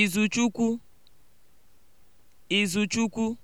Izuchukwu Izuchukwu